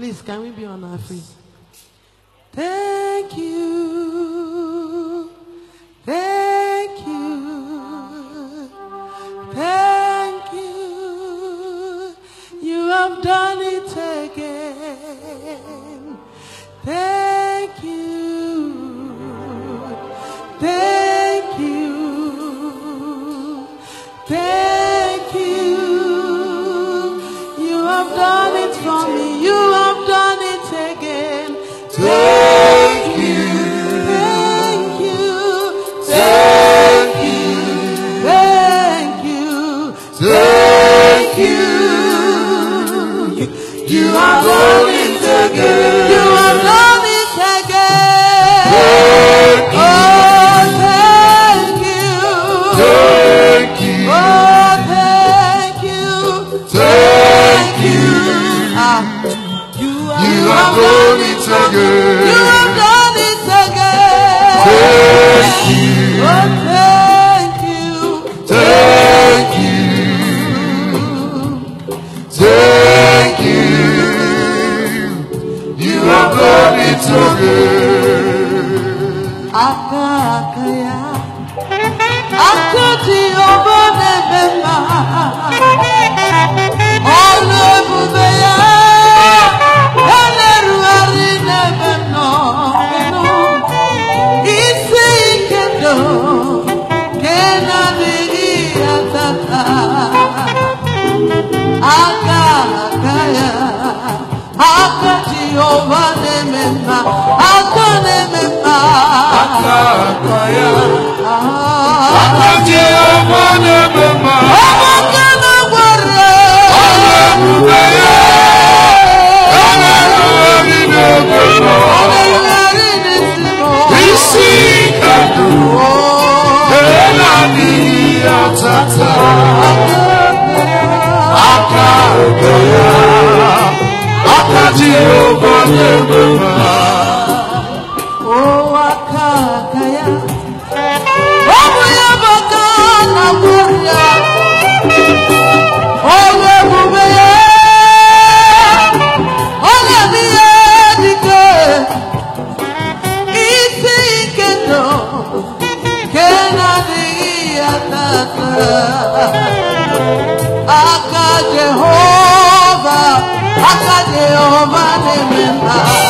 Please, can we be on our feet? Thank you. Thank you. Thank you. You have done it. aka Jehova na aka na aka ya aka Jehova na aka na-agwara ọ na-ebube ya ọ na-erugharị n'oge ògo ya wákàtí ògo lẹ́gbẹ̀ wá. ó wá kàkà ya. ó mú ya bàtà àgbẹ̀ ya. ó lè mú bẹ́ ya. ó lè mú Jehová te vendrá.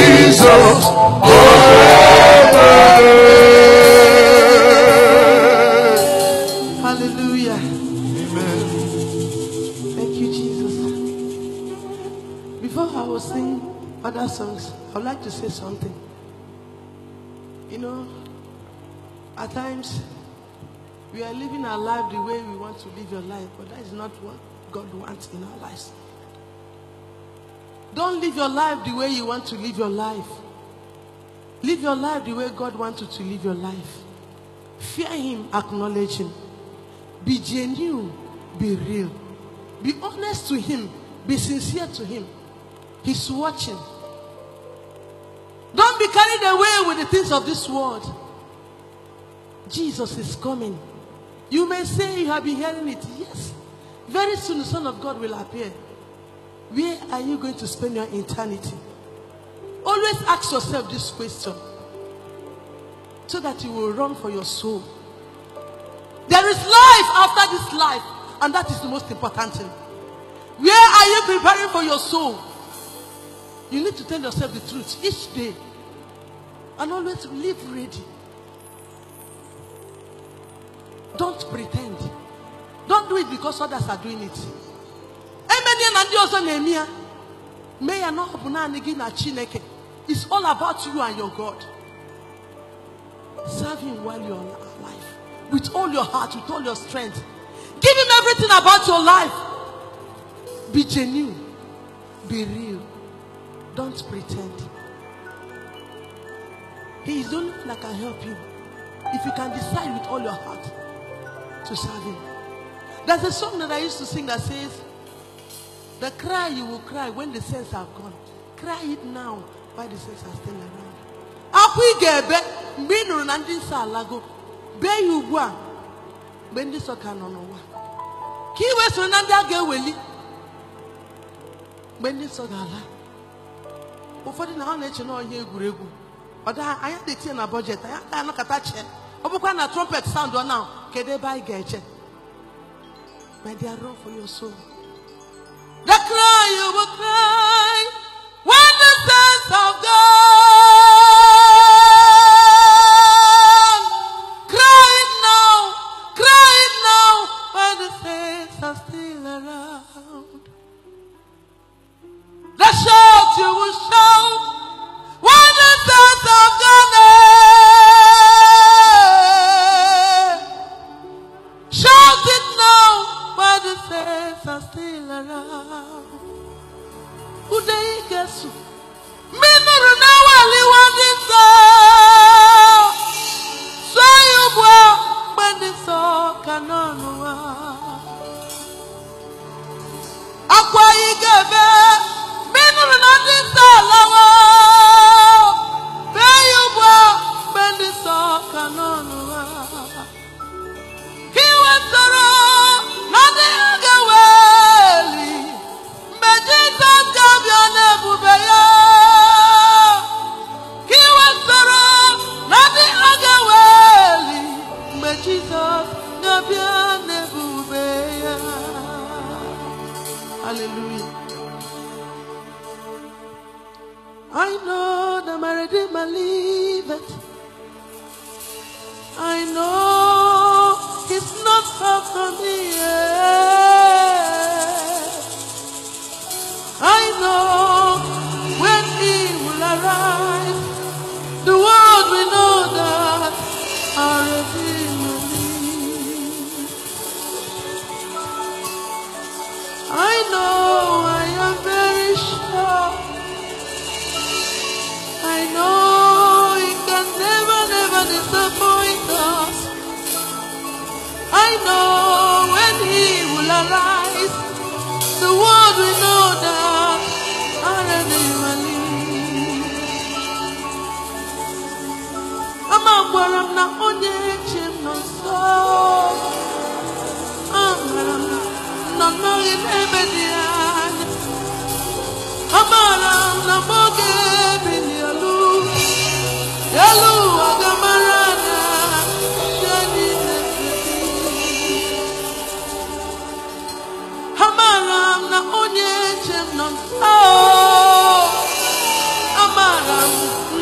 say something. You know, at times we are living our life the way we want to live your life, but that is not what God wants in our lives. Don't live your life the way you want to live your life. Live your life the way God wants you to live your life. Fear Him, acknowledge Him. Be genuine, be real. Be honest to Him, be sincere to Him. He's watching. Don't be carried away with the things of this world. Jesus is coming. You may say you have been hearing it. Yes. Very soon the Son of God will appear. Where are you going to spend your eternity? Always ask yourself this question so that you will run for your soul. There is life after this life, and that is the most important thing. Where are you preparing for your soul? You need to tell yourself the truth each day and always live ready. Don't pretend. Don't do it because others are doing it. Emenya na ndị ọzọ na-eme ya. Mee ya na ọ bụ naanị gị na Chineke. It's all about you and your God. Serve him while you're alive. With all your heart, with all your strength. Give him everything about your life. Be genuine. Be real. Don't pretend. He is the only one that can help you. If you can decide with all your heart to serve him. There's a song that I used to sing that says, The cry you will cry when the sins are gone. Cry it now while the sins are still around. Akwụ ị ga-ebe mgbe na ndị nsọ alago bee ya ugbu a mgbe ndị nsọ ka nọ n'ụwa ka ị wee na ndị a ga-eweli mgbe ndị ga-ala ụfọdụ na ha na-eche na ọhịa egwuregwu ọ anya anya detinye na bọjetị anya agaghị anakọta chee ọ bụkwa na trumpet sound ọ na kedu ebe anyị ga-eche my dear run for soul the cry you will cry when the sense of God Jésù. Mímírù na-awaliwa ndị nsọ. Sụọ ya ugbu a mgbe ndị nsọ ka Akwa anyị ga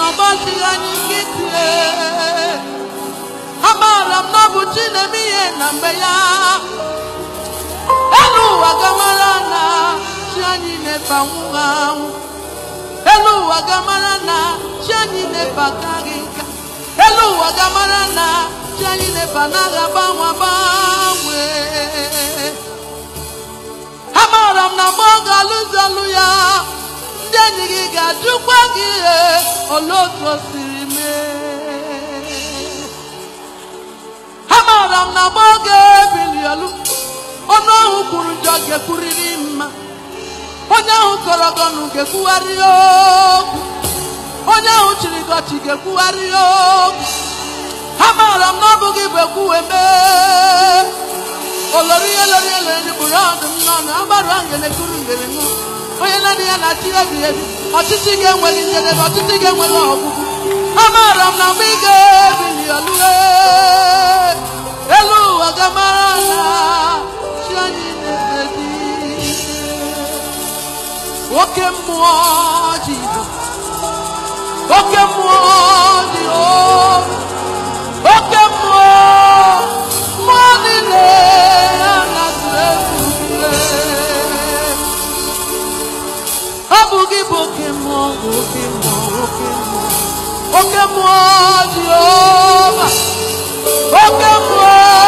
Nobody I can get ọdachi na-eme ihe na mgbe ya elu ụwa gamara na chi anyị na-ebanwu anwụ elu ụwa gamara na chi anyị na-ebataghị nka elu ụwa gamara na chi anyị na-eba n'agha gbanwe gbanwe amaara m na ọ ga-alụzi ọlụ ya ndị enyi gị ga-ajụkwa gị ihe otu o siri kwuru njọ ga-ekwurịrị mma onye ahụ kọrọ gị ga-ekwugharị okwu onye ahụ chịrị gị ga-ekwugharị okwu ha maara m na ọ bụghị bụ ekwuwe mee olori lorie lori bụ ya ọdụm n'ọnụ agbarụ ahụ ga ekwuru ngere ṅụ onye na-adị ya na chi ebi ebi ọchịchị ga-enwere njedebe ọchịchị ga enweghị ọgwụgwụ ha maara m na mgbe ị ga-ebili elu elu ụwa gamara na chi anyị o que muoiono, o che muoiono, o que muoiono, oh. muoiono alla tua O buchi buchi muoiono, o che muoiono, o che muoiono, o che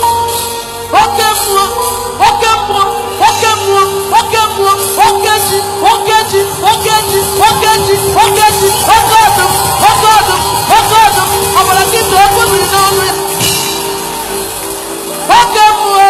Okay, mmuo oke mmuo oke mmuo oke mmuo oke ji oke ji oke ji oke ji oke ji oke ọdụm oke ọdụm oke ọdụm ọbara gị tụọ oke mmiri n'ọnụ ya oke mmuo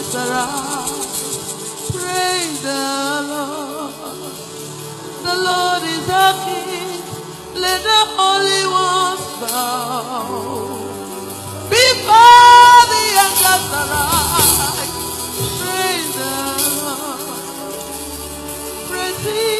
always around. Praise the Lord. The Lord is our King. Let the Holy One bow. Before the angels arise. Praise the Lord. Praise the.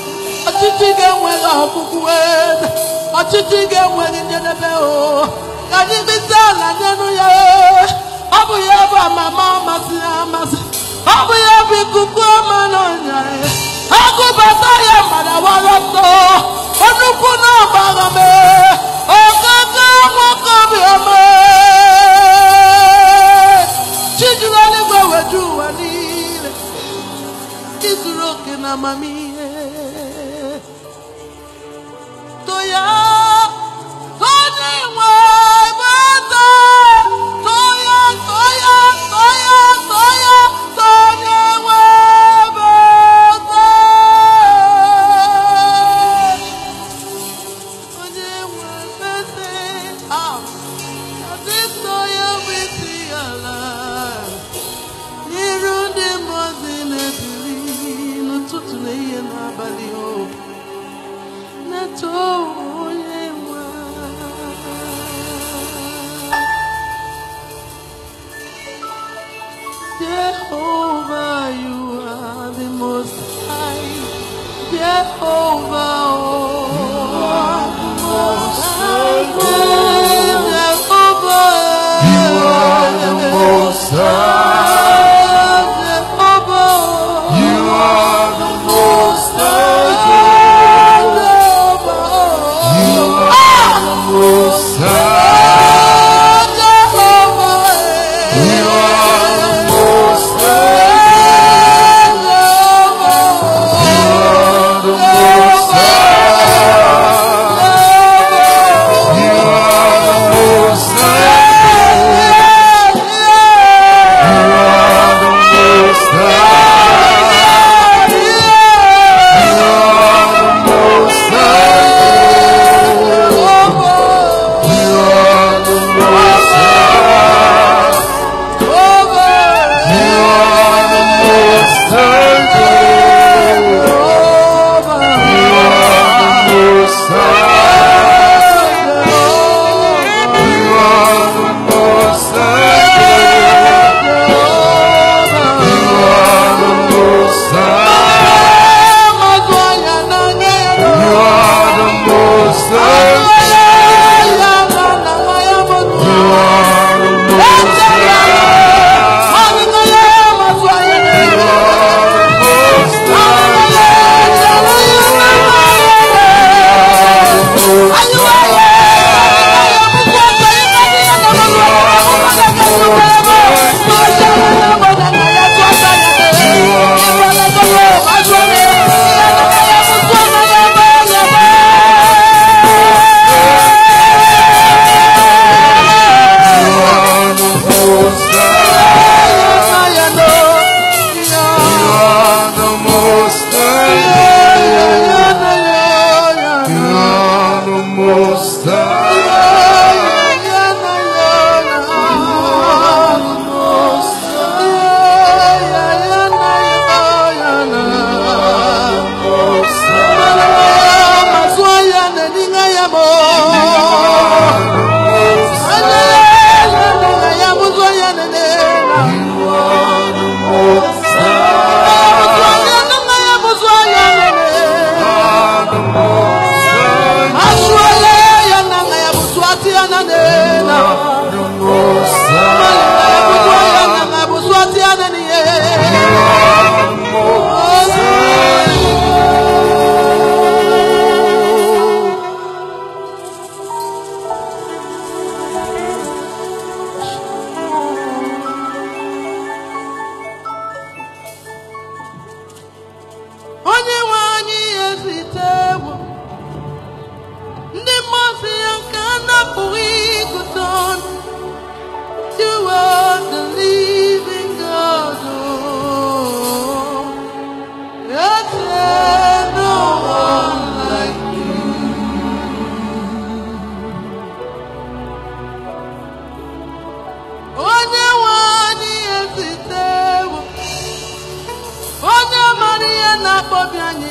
ọchịchị ga-enwere ọgụgụ ọchịchị ga-enwere njedebe o ka anyị bite ala n'elu ya ọ bụ ya bụ amama masị amasị ọ bụ ya bụ ikuku ọma n'ọnya agụbata e. e. ya mara wara ọtọ nnukwu na-agbara m ogogo nwoke obiọma chijuru eluigwe weju ụwa niile ịzụrụ oke na amamihe yeah.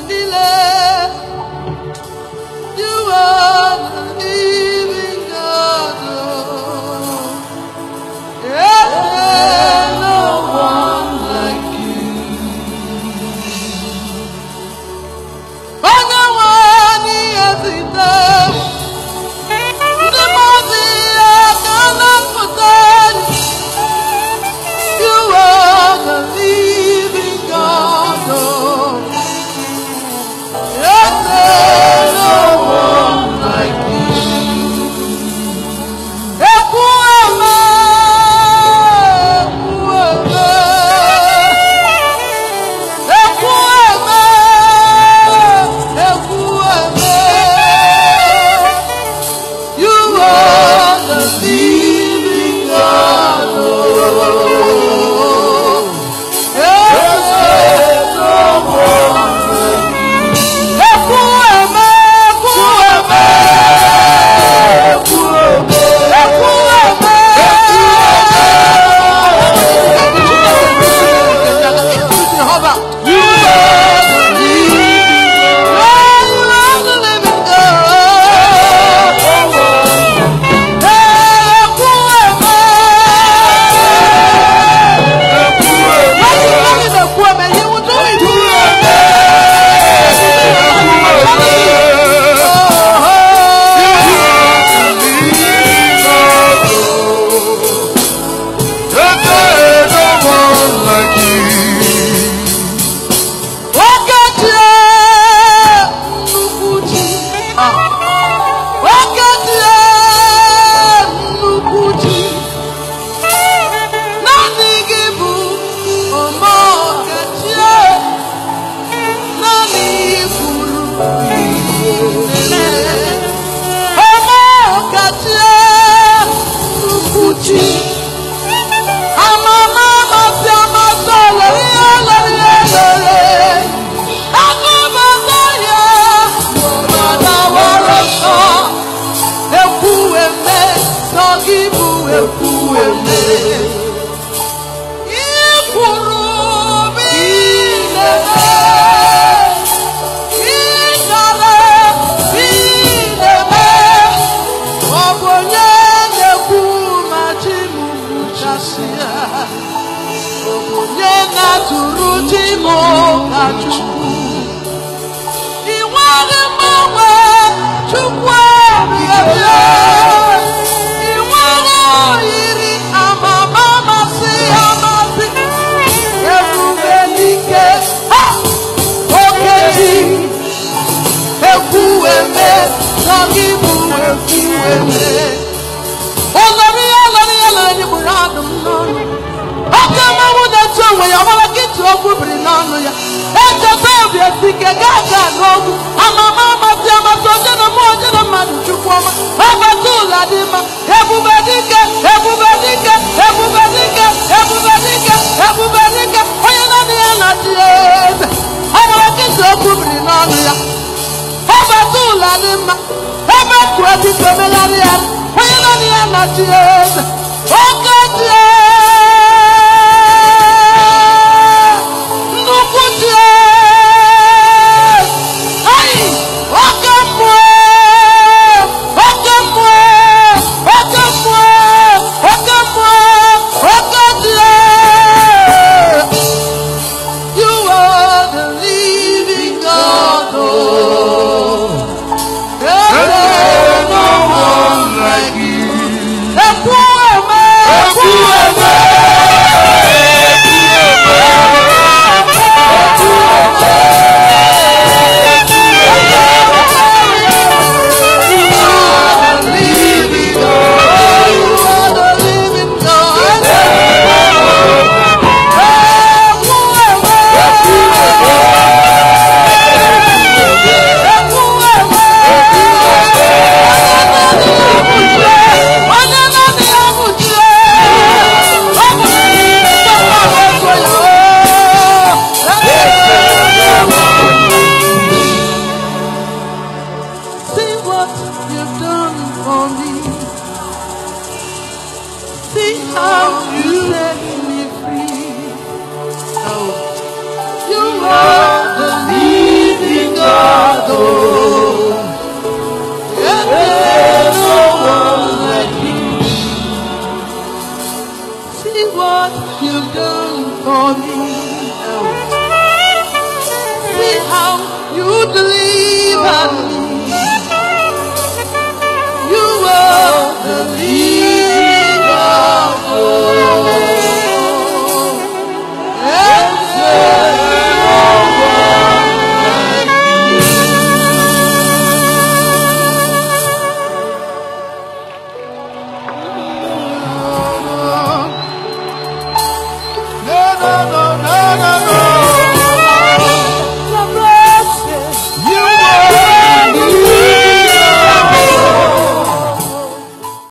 dile.